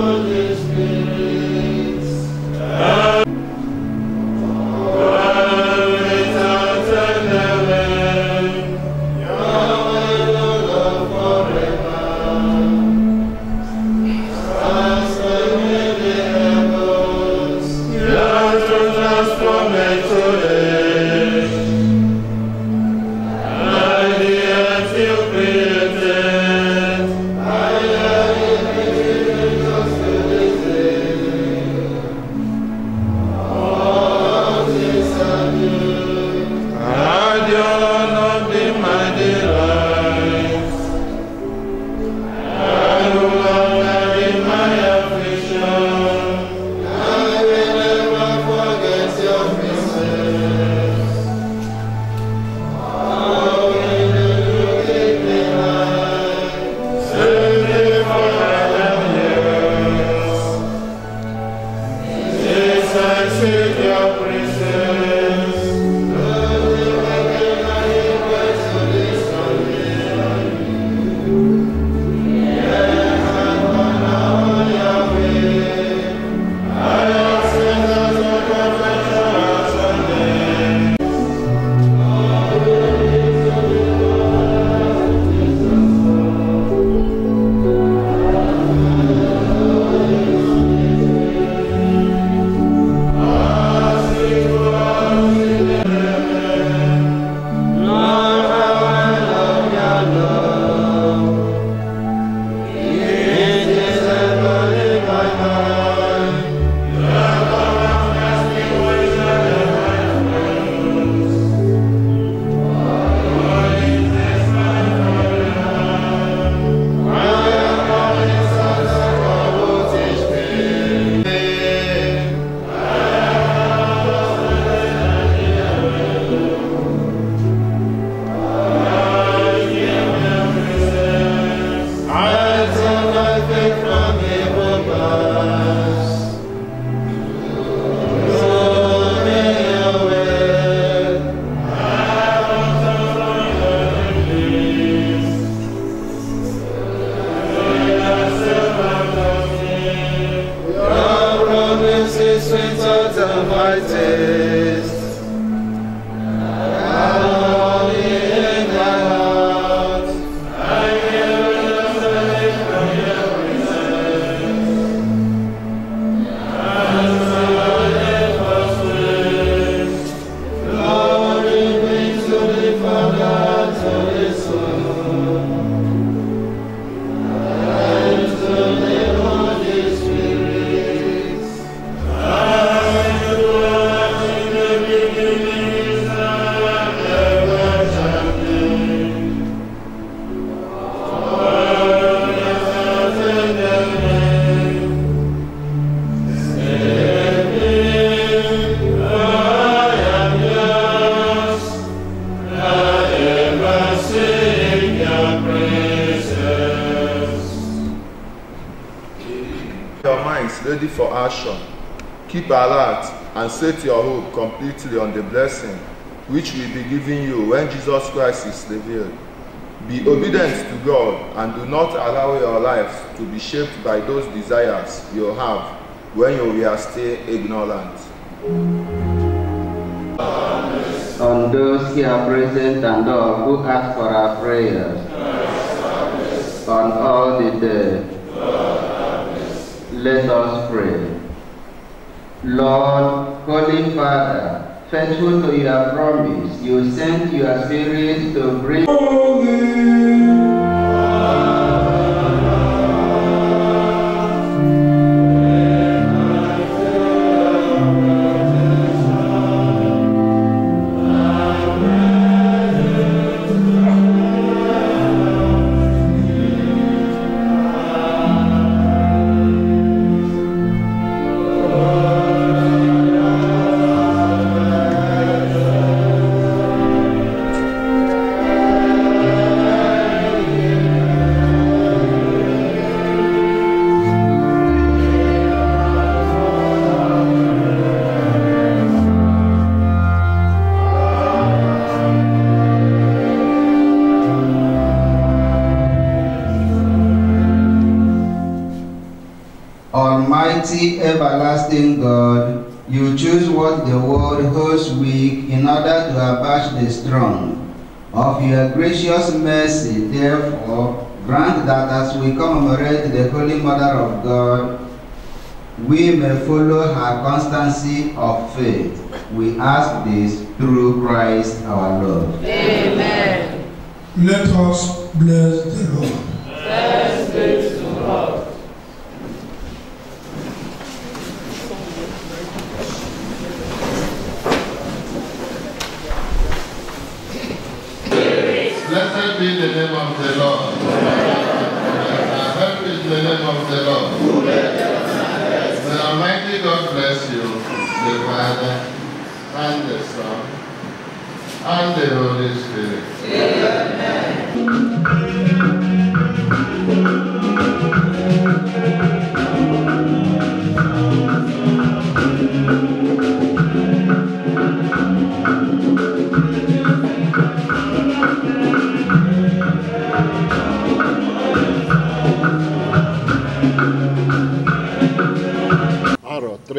Oh. action. Keep alert and set your hope completely on the blessing which will be given you when Jesus Christ is revealed. Be obedient to God and do not allow your lives to be shaped by those desires you have when you are still ignorant. On those here present and all who ask for our prayers, on all the dead, let us pray. Lord, Holy Father, faithful to your promise, you sent your Spirit to bring. Holy. Almighty, everlasting God, you choose what the world holds weak in order to abash the strong. Of your gracious mercy, therefore, grant that as we commemorate the Holy Mother of God, we may follow her constancy of faith. We ask this through Christ our Lord. Amen. Let us bless the Lord. Thanks be to God. the name of the Lord. help is the name of the Lord. The Almighty God bless you, the Father, and the Son, and the Holy Spirit. Amen.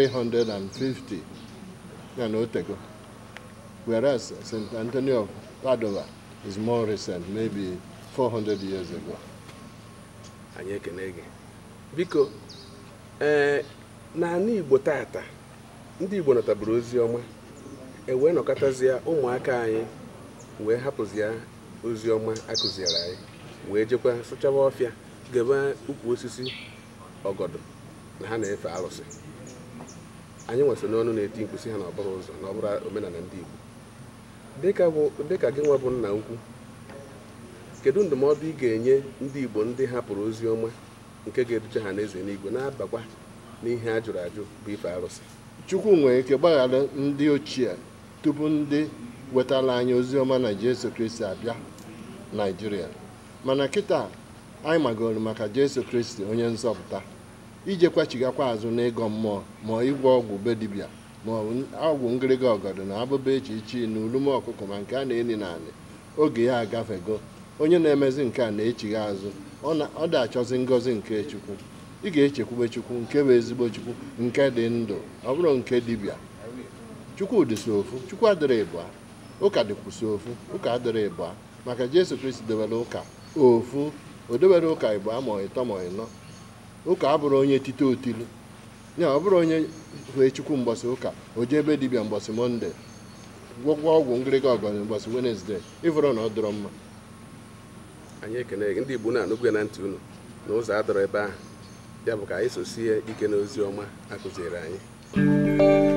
350 ya na otego whereas St. Anthony of Padua is more recent maybe 400 years ago. anyị ekele gị biko ee eh, n'ala Igbo tata ndị Igbo nataburu ozi ọma ewee nọkọtazie ụmụaka anyị wee hapụzie ozi ọma akụziere anyị wee jekwa sụchawa ọfịa gebe ukwu osisi ọgọdọ na ha na-efe arụsị anyị nwesị n'ọnụ na-eti nkwụsị ha n'ọbụrụ ụzọ na ọbụrụ omenala ndị Igbo dịka gị nwa bụ nna ukwu kedu ndụmọdụ ị ga-enye ndị Igbo ndị hapụrụ ozi ọma nke ga eduche ha n'eze n'igwe na-abakwa n'ihe a jụrụ ajụ bụ ife arụsị Chukwu nwere ike gbaghara ndị ochie tupu ndị wetara anyị ozi ọma na Jesu Kristi abịa naijiria mana kịta anyị magoro maka Jesu Kristi onye nzọpụta ijekwachigakwa azụ n'ịgọ mmụọ ma ịgwọ ọgwụ be dibịa ma ọgwụ ngịrịga ọgọdọ na abụba echi ichi na ulume ọkụkọ ma nke a na na naanị oge ya agafego onye na-emezi nke a na-echighi azụ ọ dị achọzi ngọzi nke chukwu ị ga-echekwube chukwu nke bụ ezigbo chukwu nke dị ndụ ọ bụrụ nke dibịa chukwudị so ofu chukwu adịrị ịbụa ụka dịkwuso ofu ụka adịrị ịbụa maka jesu kristi debere ụka ofu o debere ụka ịbụa ma ịtọ ma ịnọ ụka abụrụ onye tite otilu ya ọ bụrụ onye hụ chukwu mgbọsị ụka o jee ebe dibịa mgbọsị mọnde gwọgwọ ọgwụ ngịrịga ọgọnị mgbọsị wenesde ịvụrụ na ọ dọrọ mma anyị ekene gị ndị Igbo na-anụgwe na ntị unu na ụzọ adọrọ ebe ahụ ya bụ ka anyị sosie ike n'ozi ọma akụziri anyị